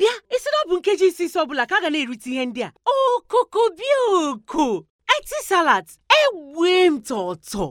bịa ịsị na bụ nkeji isi isi ọbụla ka a ga na-erite ihe ndị a okoko bịa oko eti salat egbue m tọtọ